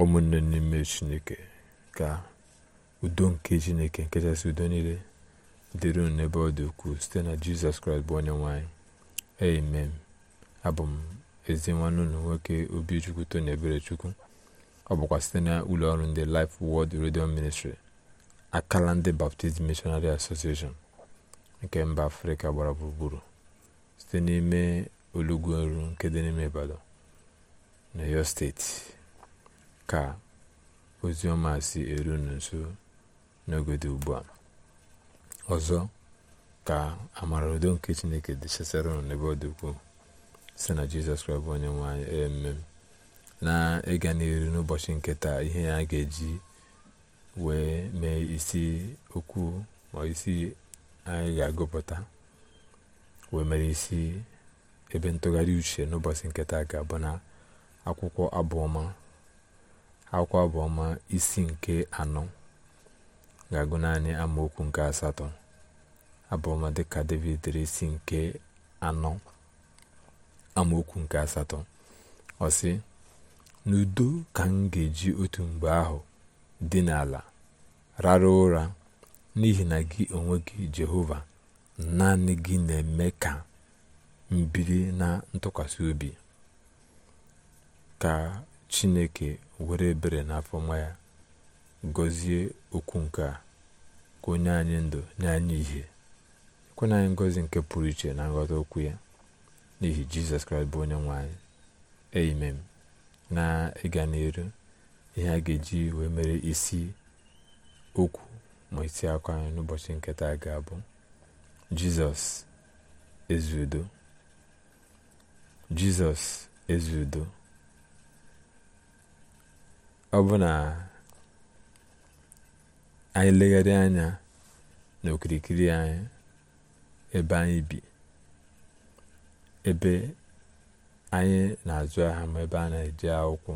ụmụnne n'ime chineke ka udo nke chineke nke kachasị udo niile dịrị n'ebe ọ dị ukwuu site na jizọs kraịst bụ onye nwanyị amen abụ m ezi nwanne obi nwoke obichukwu tony chukwu ọ bụkwa site na ụlọ ọrụ ndị Life world Radio Ministry akala ndị Baptist Missionary Association nke mba afrịka gbara gburugburu site n'ime olugweru nke dị n'ime Ibadan na steeti ka ozi ọma si eru unu nso ugbu a ọzọ ka amara udo nke chineke dị chesara unu n'ebe ọ dị ukwuu si na jizọs kraịst bụ onye nwanyị eme na ịga n'iru n'ụbọchị nke ihe ya ga-eji wee mee isi okwu ma isi anyị ga-agụpụta wee mere isi ebe ntụgharị uche n'ụbọchị nketa ga-abụ na akwụkwọ abụọma akwa abụọma isi nke anọ ga-agụ naanị amaokwu nke asatọ abụọma dịka david dere isi nke anọ amaokwu nke asatọ ọ sị n'udo ka m ga-eji otu mgbe ahụ dị n'ala rara ụra n'ihi na gị onwe gị jehova naanị gị na-eme ka mbiri na ntụkwasị obi ka chineke were ebere n'afọ nwa ya gọzie okwu nke a ka onye anyị ndụ nye anyị ihe ekwenye anyị ngọzi nke pụrụ iche na nghọta okwu ya n'ihi jizọs kraịst bụ onye nwe anyị amen na ịga n'iru ihe a ga-eji wee mere isi okwu ma isi akwa anyị n'ụbọchị nketa ga-abụ jizọs ezi jizọs ọ bụ na anyị legharị anya n'okirikiri anyị ebe anyị bi ebe anyị na-azụ ahịa ma ebe a na-eji akwụkwọ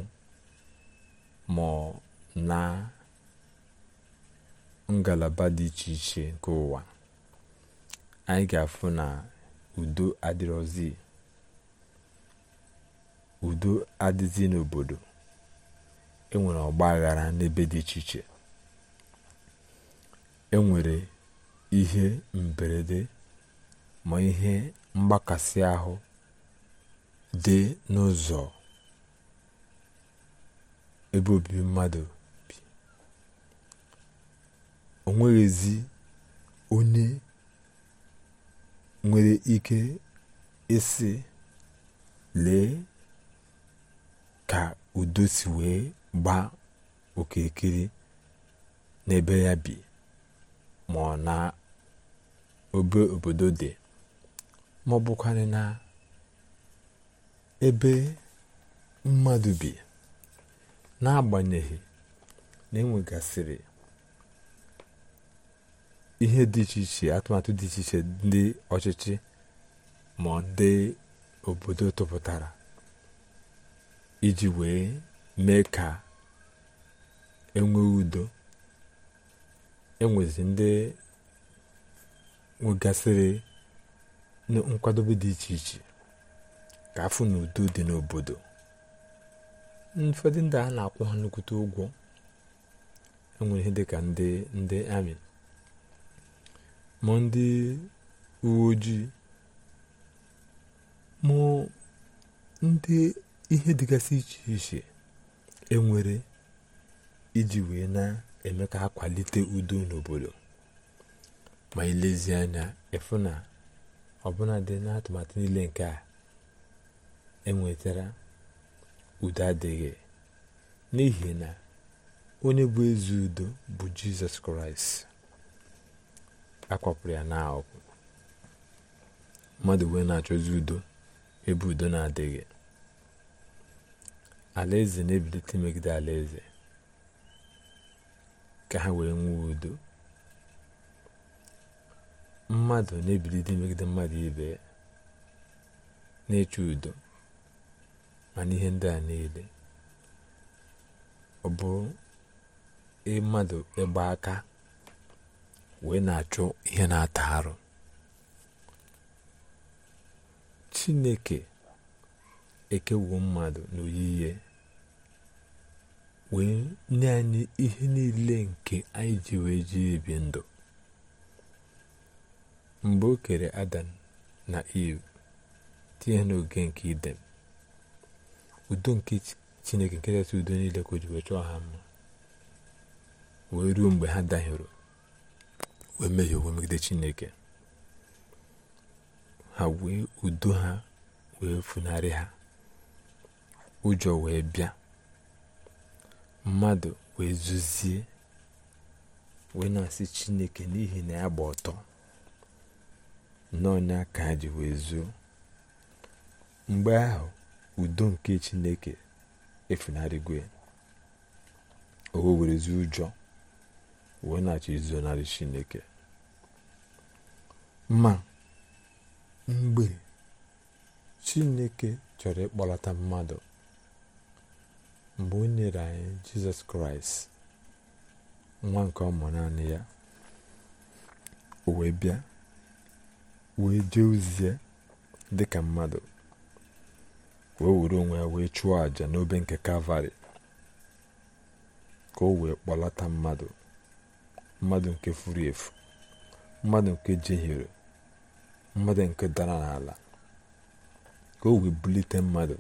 ma na ngalaba dị iche iche nke ụwa anyị ga-afụ na udo adịrọzi udo adịzi n'obodo enwere ọgba aghara n'ebe dị iche iche enwere ihe mberede ma ihe mgbakasị ahụ dị n'ụzọ ebe obibi mmadụ bi o nweghịzi onye nwere ike ịsị lee ka udo si wee gbaa okirikiri n'ebe ya bi ma ọ na obe obodo dị ma ọ bụkwanị na ebe mmadụ bi n'agbanyeghị na enwegasịrị ihe dị iche iche atụmatụ dị iche iche ndị ọchịchị ma ọ dị obodo tụpụtara iji wee mee ka enweghị udo enwezi ndị nwegasịrị nkwadobe dị iche iche ka afụ na udo dị n'obodo ụfọdụ ndị a na-akwụ ha nnukwute ụgwọ enwere ihe dịka ndị ndị amị ma ndị uwe ojii ma ndị ihe dịgasị iche iche enwere iji wee na-eme ka ha kwalite udo n'obodo ma ilezi anya ịfụ na ọbụna dị n'atụmatụ niile nke a enwetara udo adịghị n'ihi na onye bụ ezi udo bụ jizọs kraịst akwapụrụ ya n'ahụ. mmadụ wee na-achọzi udo ebe udo na-adịghị alaeze na-ebilite megide alaeze ka ha were nwee udo mmadụ na dị megide mmadụ ibe na-eche udo ma ihe ndị a niile ọ bụ bụrụ mmadụ ịgba aka wee na-achụ ihe na-ata arụ chineke ekewuo mmadụ ihe. wee nye anyị ihe niile nke anyị ji wee ji ebi ndụ mgbe o kere adam na iv tinye n'oge nke idem udo nke chineke nke kachasị udo niile ka o ji wee chọọ ha mma wee ruo mgbe ha dahiere wee mehie owe megide chineke ha wee udo ha wee funarị ha ụjọ wee bịa mmadụ wee zuzie wee na-asị chineke n'ihi na ya gba ọtọ n'ọnya ka ha ji wee zuo mgbe ahụ udo nke chineke efunarịgo ya o were zuo ụjọ wee na-achọ chineke ma mgbe chineke chọrọ ịkpọlata mmadụ mgbe o nyere anyị jizọs kraịst nwa nke ọmụ naanị ya o wee bịa wee jee ozie dịka mmadụ wee were onwe ya wee chụọ àjà n'obe nke kalvarị ka o wee kpọlata mmadụ mmadụ nke furu efu mmadụ nke jehiere mmadụ nke dara n'ala ka o wee bulite mmadụ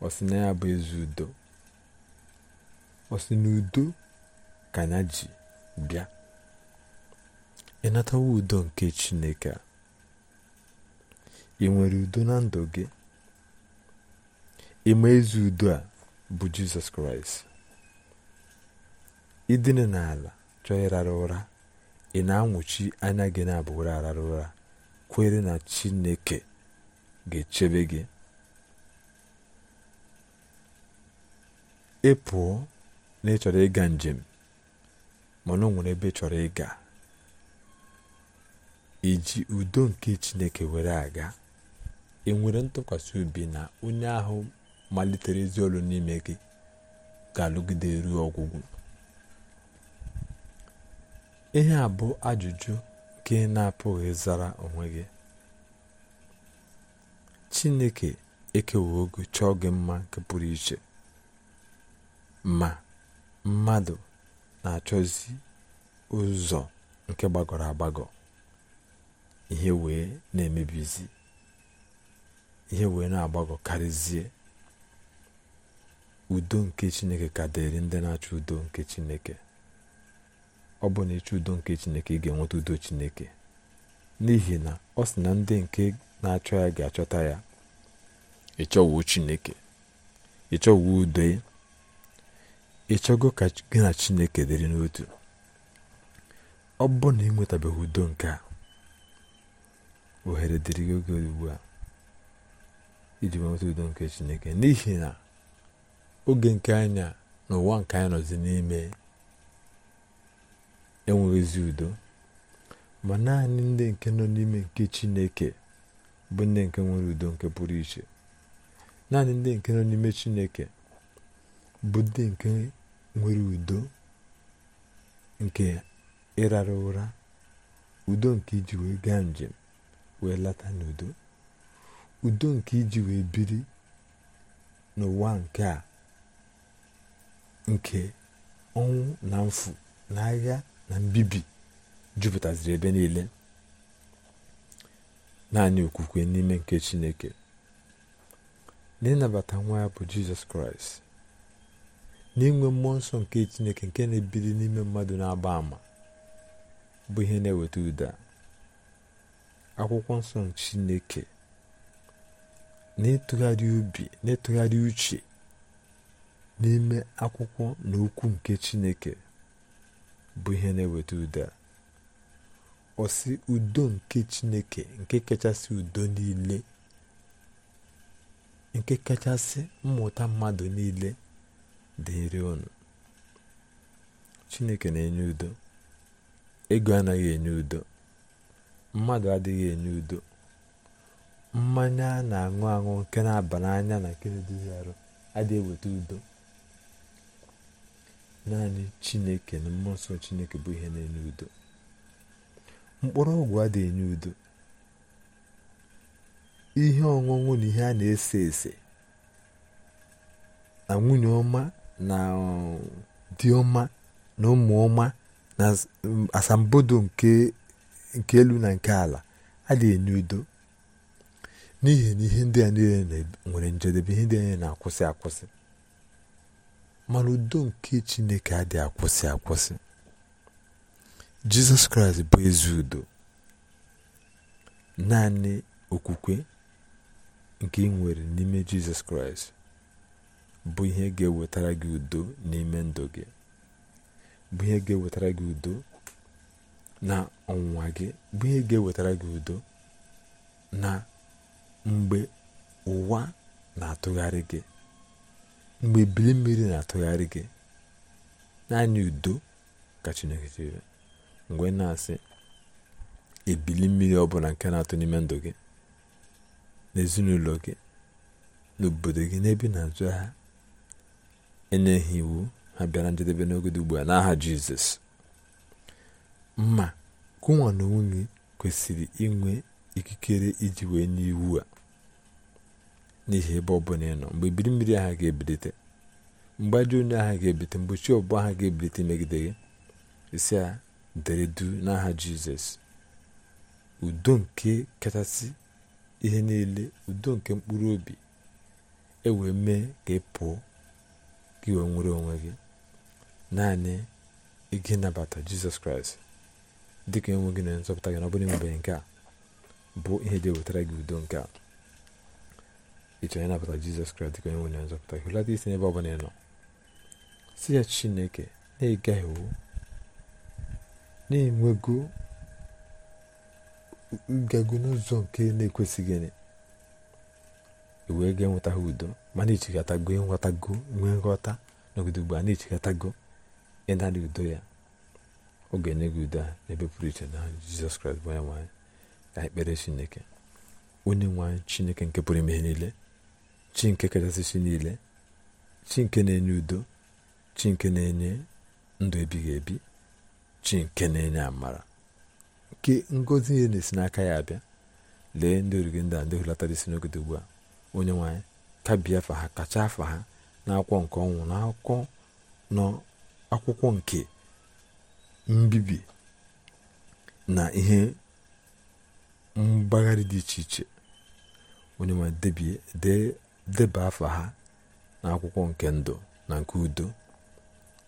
ọ sị na ya bụ ezi udo ọ sị na udo ka ji bịa ịnatawa udo nke chineke a ị nwere udo na ndụ gị ịma ezi udo a bụ jizọs kraịst idina n'ala chọọ ịrara ụra ị na-anwụchi anya gị na abụghị arara ụra kwere na chineke ga-echebe gị ị pụọ na ị chọrọ ịga njem mana o nwere ebe ị chọrọ ịga iji udo nke chineke were aga ị e nwere ntụkwasị obi na onye ahụ malitere ezi ọrụ n'ime gị ga-alụgide ruo ọgwụgwụ ihe a bụ ajụjụ nke na-apụghị zara onwe gị chineke ekewogo chọọ gị mma nke pụrụ iche ma mmadụ na-achọzi ụzọ nke gbagọrọ agbagọ ihe wee na-emebizi ihe wee na-agbagọ karịzie udo nke chineke ka dịrị ndị na-achọ udo nke chineke ọ bụ na ịchọ udo nke chineke ị ga-enweta udo chineke n'ihi na ọ sị na ndị nke na-achọ ya ga-achọta ya ịchọwo chineke ịchọwo udo ị ka gị na chineke dịrị n'otu ọ bụrụ na ị nwetabeghị udo nke a ohere dịrị gị oge ugbu a iji nweta udo nke chineke n'ihi na oge nke anya na ụwa nke anya nọzi n'ime enweghịzi udo ma naanị ndị nke nọ n'ime nke chineke bụ ndị nke nwere udo nke pụrụ iche naanị ndị nke nọ n'ime chineke bụ ndị nke nwere udo nke ịrara ụra udo nke iji wee gaa njem wee lata n'udo udo nke iji wee biri n'ụwa nke a nke ọnwụ na mfu na agha na mbibi jupụtaziri ebe niile naanị okwukwe n'ime nke chineke ịnabata nwa ya bụ jizọs kraịst na mmụọ nsọ nke chineke nke na-ebili n'ime mmadụ na-agba ama bụ ihe na-eweta ụda akwụkwọ nsọ chineke n'ịtụgharị ubi n'ịtụgharị uche n'ime akwụkwọ na okwu nke chineke bụ ihe na-eweta ụda ọsị udo nke chineke nke kachasị udo niile nke kachasị mmụta mmadụ niile dịrị unu chineke na-enye udo ego anaghị enye udo mmadụ adịghị enye udo mmanya na-aṅụ aṅụ nke na-aba n'anya na nke na-eduzi arụ adịghị eweta udo naanị chineke na mmụọ nsọ chineke bụ ihe na-enye udo mkpụrụ ọgwụ adịghị enye udo ihe ọṅụṅụ na ihe a na-ese ese na nwunye ọma na dị na ụmụ ọma na asambodo nke elu na nke ala adịghị enye udo n'ihi na ihe ndị a niile nwere njedebe ihe ndị a na-akwụsị akwụsị mana udo nke chineke adịghị akwụsị akwụsị jizọs kraịst bụ ezi udo naanị okwukwe nke nwere n'ime jizọs kraịst bụ ihe ga-ewetara gị udo n'ime ndụ gị bụ ihe ga-ewetara gị udo na ọnwụnwa gị bụ ihe ga-ewetara gị udo na mgbe ụwa na-atụgharị gị mgbe ebili mmiri na-atụgharị gị naanị udo ka Chineke chere mgbe na-asị ebili mmiri ọbụla nke na-atụ n'ime ndụ gị n'ezinụlọ gị n'obodo gị n'ebe na-azụ ha enyeghị iwu ha bịara njedebe n'ogede ugbu a n'aha jizọs mma kụnwa na nwunye kwesịrị inwe ikikere iji wee nye iwu a n'ihi ebe ọbụla ịnọ ịnọ mgbe ibiri mmiri agha ga-ebilite mgbe onye agha ga-ebilite mgbochi ọbụ agha ga-ebilite megide gị isi a dere n'aha jizọs udo nke kachasị ihe niile udo nke mkpụrụ obi e wee mee ka ị pụọ gị wee nwere onwe gị naanị ịga ịnabata jizọs kraịst dị ka enwe gị na nzọpụta gị na ọ bụrụ enwebeghị nke a bụ ihe dị ewetara gị udo nke a ịchọrọ ịnabata jizọs kraịst dị ka na nzọpụta gị hụlata isi n'ebe ọ bụla nọ si ya chineke na-egaghị iwu na-enwego ngago n'ụzọ nke na-ekwesịghị wee ga enweta ha udo ma na-echekọtago ịnwetago nwee nghọta n'ogodo ugbu a na-echekọtago ịnara udo ya oge ga-enye gị udo a n'ebe pụrụ iche na jizọs kraịst bụ onye nwanyị ka anyị chineke onye nwanyị chineke nke pụrụ ime ihe niile chi nke kachasị chi niile chi nke na-enye udo chi nke na-enye ndụ ebighị ebi chi nke na-enye amara nke ngozi ihe na-esi n'aka ya abịa lee ndị origi ndị a ndị hulatara isi n'ogodo ugbu a onye nwanyị tabi afa ha kacha afa ha n'akwụkwọ nke ọnwụ na akụkọ n'akwụkwọ nke mbibi na ihe mgbagharị dị iche iche onye ma deba afa ha na akwụkwọ nke ndụ na nke udo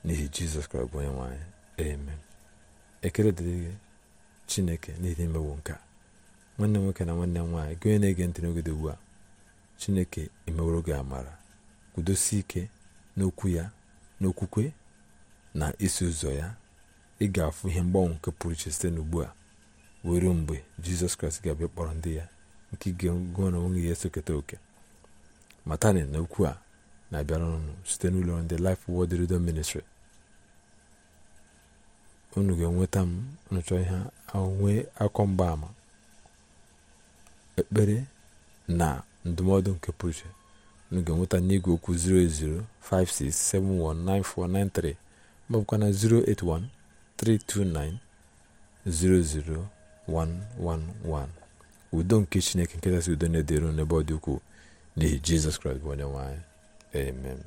n'ihi jizọs kraịst bụ onye nwanyị amen ekele dịrị gị chineke n'ihi imewo nka nwanne m nwoke na nwanne nwaanyị gị onye na-ege ntị n'oge dị ugbu a chineke emeworo gị amara kwudosi ike n'okwu ya n'okwukwe na isi ụzọ ya ị ga-afụ ihe mgbanwe nke pụrụ iche site n'ugbu a were mgbe jizọs kraịst ga-abịa kpọrọ ndị ya nke ga-ego na onwe ya esoketa oke matani na okwu a na-abịara ọnụ site n'ụlọ ndị lif Word Redemption unu ga-enweta m nụchọ ihe akọ mgbaama ekpere na ndụmọdụ nke pụrụ iche nweta ga-enweta n'igwe okwu 08056719493 ma na 08132900111 udo nke chineke nke si udo na-edero n'ebe ọ dị ukwuu n'ihi jizọs kraịst bụ onye nwanyị anyị amen